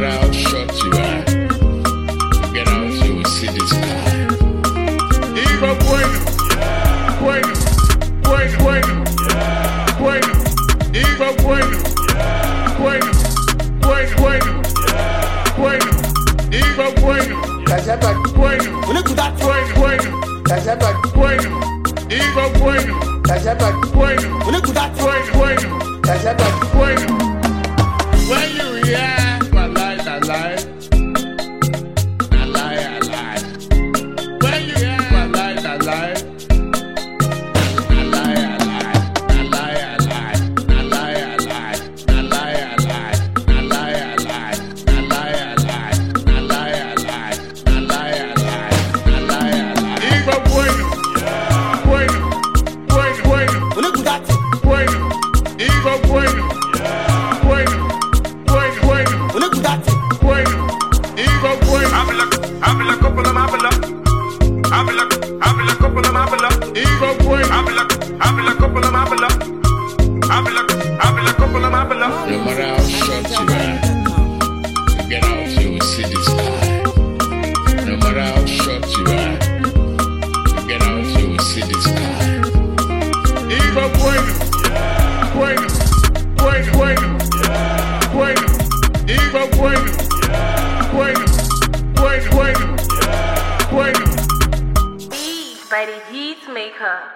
matter how short you are, get out, you will see this guy. Hijo bueno, bueno, bueno, bueno, bueno, hijo bueno, bueno, bueno, bueno, bueno, hijo bueno, bueno, bueno, bueno, bueno, hijo bueno, bueno, bueno, bueno, bueno, Bueno, bueno, bueno, bueno. Look at that. No matter how short you are, get out, you will see this. mighty heat maker.